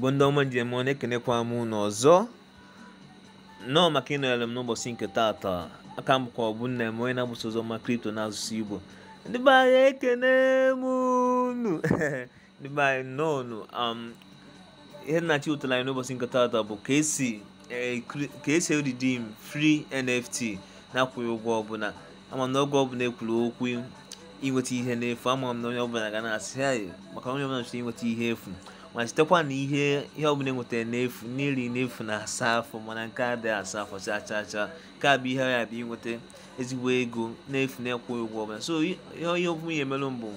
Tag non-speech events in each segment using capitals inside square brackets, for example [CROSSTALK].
bụ ndị ọma njem ọ na-ekenekwa m unu ọzọ nnọọ maka ịnọnyere m n'ụbọchị nke taata aka m bụkwa ọbụ nna m onye na-agbasa ọzọ ma kripto na n'asụsụ igbo ndị be anyị ekene m unu [LAUGHS] ndị be anyị nnọọ nụ um, ihe nnachi ụtara anyị n'ụbọchị nke taata bụ ka esi eh, ka fri nft na-akwụghị ụgwọ ọbụla ama na ọgwụ ọbụla ekwuru okwu inweta ihe n'efu ama m na onye ọbụla ga na-asị maka onye ọbụla chọrọ inweta ihe efu ma sitekwa na ihe ihe ọbụla enwetara n'efu n'iri n'efu na asa afọ mana nke a dịghị asa afọ chaa chaa chaa nke a bụ ihe ya bụ inweta ezigbo ego n'efu na-ekwughị ụgwọ ọbụla so ihe ọbụla ya emelụ mbụ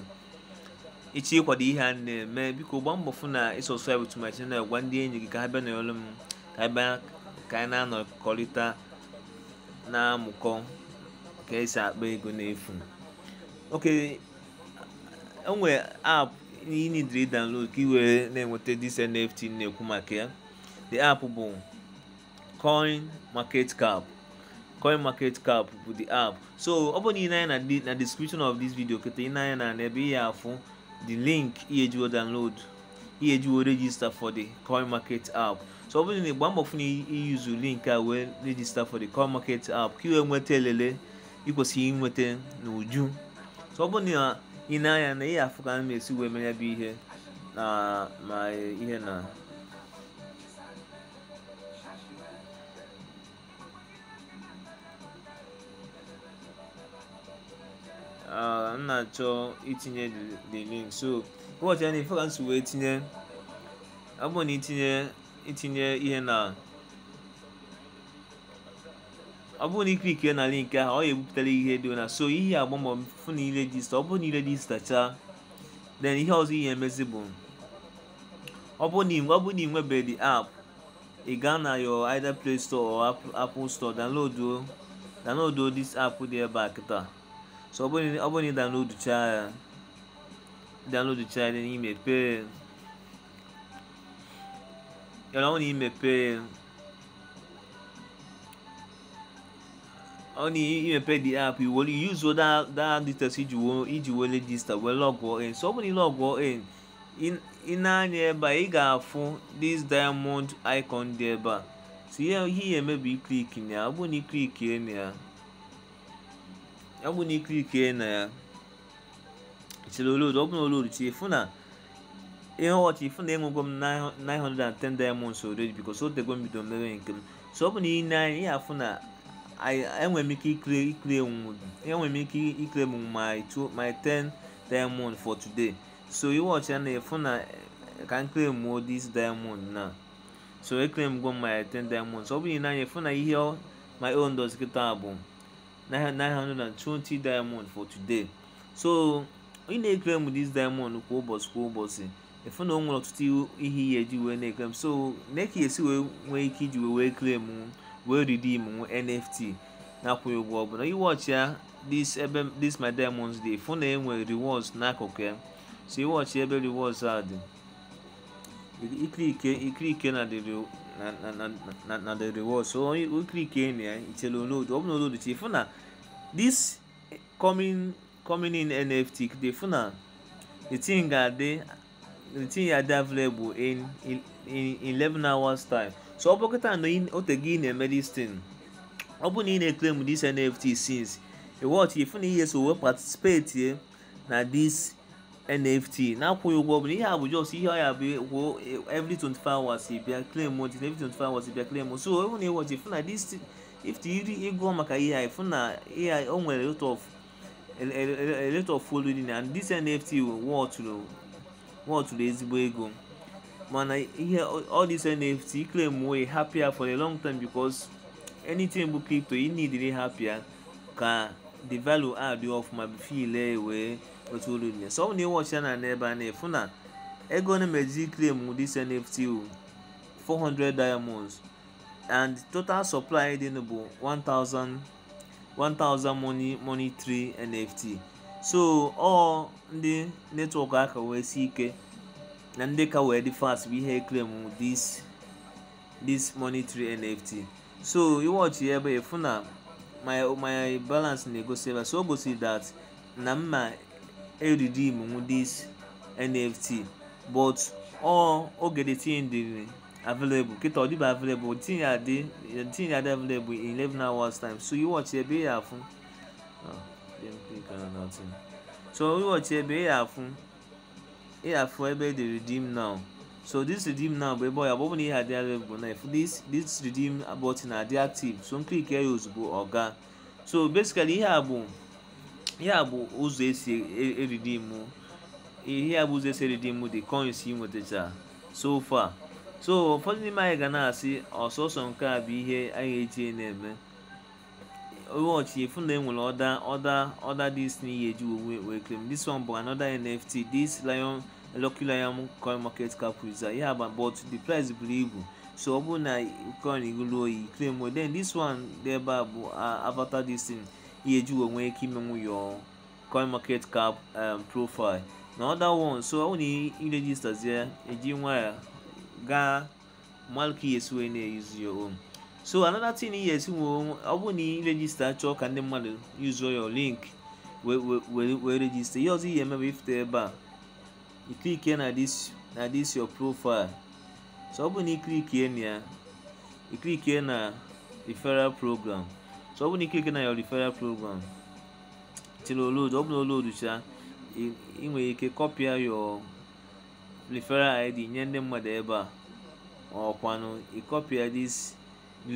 ịchọ ịkwado ihe a na-eme biko gbaa mbọ fụ na ịsọscribe to my na gwa ndị enyi gị ka ha bịa n'olu m ka ha bịa ka anyị na-anọkọrịta na-amụkọ ka esi akpa ego n'efu oke enwere aapụ ihe need to download ka ị were na-enweta this nft na-ekwu maka ya the app bụ coin market cap coin market cap bụ the app so ọ bụ na ị na-anya na description of this video keta ị na-anya na ebe ihe afụ the link ihe jiwo download ihe jiwo register for the coin market app so ọ bụrụ na ịgba mbọ fụ na iyuzu link a wee register for the coin market app ka ị wee nweta elele ị kwesịrị inweta n'uju so ọ bụrụ na ị na-anya na ihe afụ ka a na-esi wee mere bụ ihe na ma ihe na m na-achọ itinye the link so ụbọchị ya na ife ka wee tinye abụọ na itinye itinye ihe na ọ bụrụ na ike ike na link ahụ ọ ya ebupụtara ihe dị na so ihe agbamọ fụ na ire register ọ bụrụ na ire register chaa then ihe ọzọ ihe emezi bụ ọ bụrụ na ọ bụrụ na ị nwebeghị app ị gaa na your either play store or apple store download download this app dị ebe a kịta so ọ bụrụ na ị download chaa ya download chaa ya n'ime pee ya na ọ na imepe ọ na-emepe the app i were yuzuo that details iji were register were lọgụọ in so ọ bụrụ na ịlọgụọ in ị na-anya ebe a ị ga-afụ dis diamond icon dị ebe a so ihe ihe emebi iklik na ya ọ bụrụ na iklikie na ya ọ bụrụ na iklikie na ya chere olodo ọ bụrụ na olodo chi fụ na ihe ọchị fụ na enwego m 910 diamonds already because o tego m bido mere nke m so ọ bụ na ị na-anya ya afụ na enwere m ike ikle ikle enwere m ike ikle m my two my ten diamond for today so iwọchi ya na-efu na ka m claim this diamond na eh. so eclaim go my ten diamond so ọ bụghị n'anya efu na ihe my own does kịta bụ 920 diamond for today so ị na-eclaim this diamond kwa ụbọchị kwa ụbọchị efu na o nwere ọtụtụ ihe ihe eji wee na m so na ka esi wee nwee ike iji wee wee claim oh. wɔredidi mu nft na akɔ ewu ɔbɔ na yi this ɛbɛ this my diamonds day phone na enwe rewards na akɔkɔ so yi wɔɔkye ɛbɛ rewards a de ikirike ikirike na de na na na na de rewards so ikirike nea nkyɛlɛ onoo de ɔbɛn onoo de tie phone na this coming coming in nft de phone na the thing ga de the thing ya dey available in in in eleven hours time. so ọ bụkịta na ote gị na-eme this ọ bụrụ na ị na-eclaim this nft since iwọchi ifu na ihe so wee participate na this nft na-akwụghị ụgwọ bụ ihe a bụ jos ihe ọya bụ kwuo every 24 hours bịa claim ot every 24 hours bịa claim so ọ bụ na iwọchi ifu na this if iri ịgụọ maka ihe a ifu na ihe a o nwere lot of a lot of following and this nft wọtụrụ ezigbo ego mana ihe all this nft claim wey happier for a long time because anything bụ crypto you need happier ka the value add ma bifo ile wee otu olu nye so na ịwọcha na n'ebe a na-efu na ego na-emeji claim this nft 400 diamonds and total supply dị bụ 1000 1000 money money 3 nft so ọ ndị netwọk aka wee si ike Nandeka were the first we hear claim this this monetary NFT. So you watch here but funa my my balance na go save so go see that na mma e redeem mu this NFT but all oge the thing dey available kita ọ dịba available the thing ya dey the thing ya dey available in eleven hours time so you watch here be ya fun. Ah, oh, so you watch here be ya ị afụ ebe dị redeem now so this redeem now bụ ebe ọ ya bụ ọ bụ na ihe adịghị available na if this this redeem button adị active so nklik ya ozugbo ọ gaa so basically ihe a bụ ihe a bụ ụzọ esi eridim ihe a bụ ụzọ esi eridim the coins ị nwetacha so far so ụfọdụ n'ime anyị ga na-asị ọsọsọ nke a bụ ihe anyị eji na-eme watch if they will ọda ọda ọda this new year you will claim this one bụ another nft this lion elọkila ya m coin market cap user ya ba but the price buru ibu so ọ bụrụ na coin ruru oyi claim o then this one dị ebe a bụ avatar this thing ya eji onwe ike imenwu your coin market cap um, profile na other one so ọ na iregistazie eji nwa ya gaa malki yesu wee na-eyuzu your own so another thing ihe esi nwe ọ bụ na ị rejista chọọ ka ndị mmadụ yuzuo your link wee rejista ihe ọzọ ihe emebe ifute ebe a iklikie na this your profile so ọ bụ na iklikie na ya na referral program so ọ bụ na iklikie na your referral program till load ọ bụ na load cha ị nwere ike kọpịa your referral id nye ndị mmadụ ebe a ọkwanụ ịkọpịa this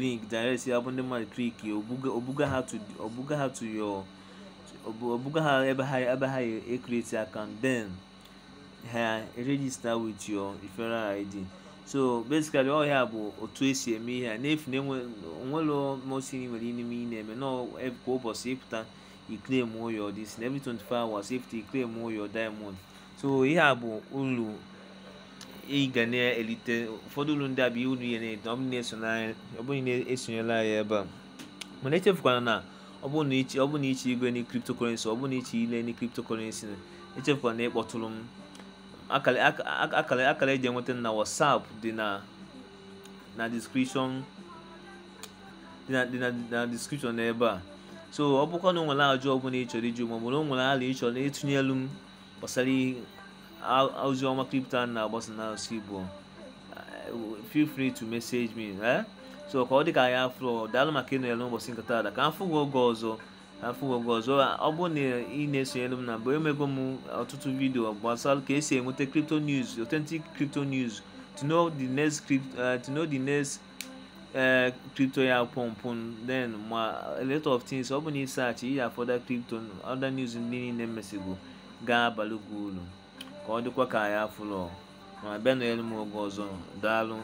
link direct ya bụ ndị mmadụ kliki obuga ha to your obuga ha ebe ha ebe ha e-, e-, account den. ha register with your referral id so basically ọ ya bụ otu esi eme ihe a n'efu na onwere mosiri nwere n'ime ị na-eme na kwa ụbọchị ịpụta iclaim your this na every 24 hours ịpụta iclaim ụyọ diamond so ihe a bụ uru ị ga na-elite ụfọdụ uru ndị a bụ uru ya na ọ bụrụ na-esonyela ya ebe a mana echefukwana na ọ bụ na iche igwe na cryptocurrency ọ na iche ile na cryptocurrency echefukwana ịkpọtụrụ m akara akara eji enweta na whatsapp dị na na description dị na description n'ebe a so ọ bụkwa na o nwere ajụ ọbụla ị chọrọ iju maọbụ na o nwere ala ị chọrọ ịtụnyelu m gbasara ozi ọma kripto a na-agbasa n'asụsụ Igbo eh, feel free to message me eh? so ka ọ dị ka ya afọ daalụ maka ịnọnyere n'ụbọchị nkata ada ka m fụ gị oge ọzọ afọ ụgwọ ọzọ ọ bụ na ị na-esonyere m na mbụ emego m ọtụtụ vidio gbasara ka esi enweta crypto news authentic crypto news to know the next crypto uh, eh, to know the next uh, crypto ya pụmpụ then ma a lot of things ọ bụ na ịsaachị ihe afọda crypto other news ndị niile mesigo ga-abalị gị uru ka ọ dịkwa ka ya fụlọ ma bịa nọnyere m oge ọzọ daalụ